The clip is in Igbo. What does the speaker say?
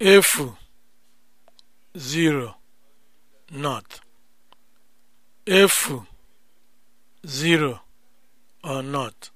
efu zero not efu zero or not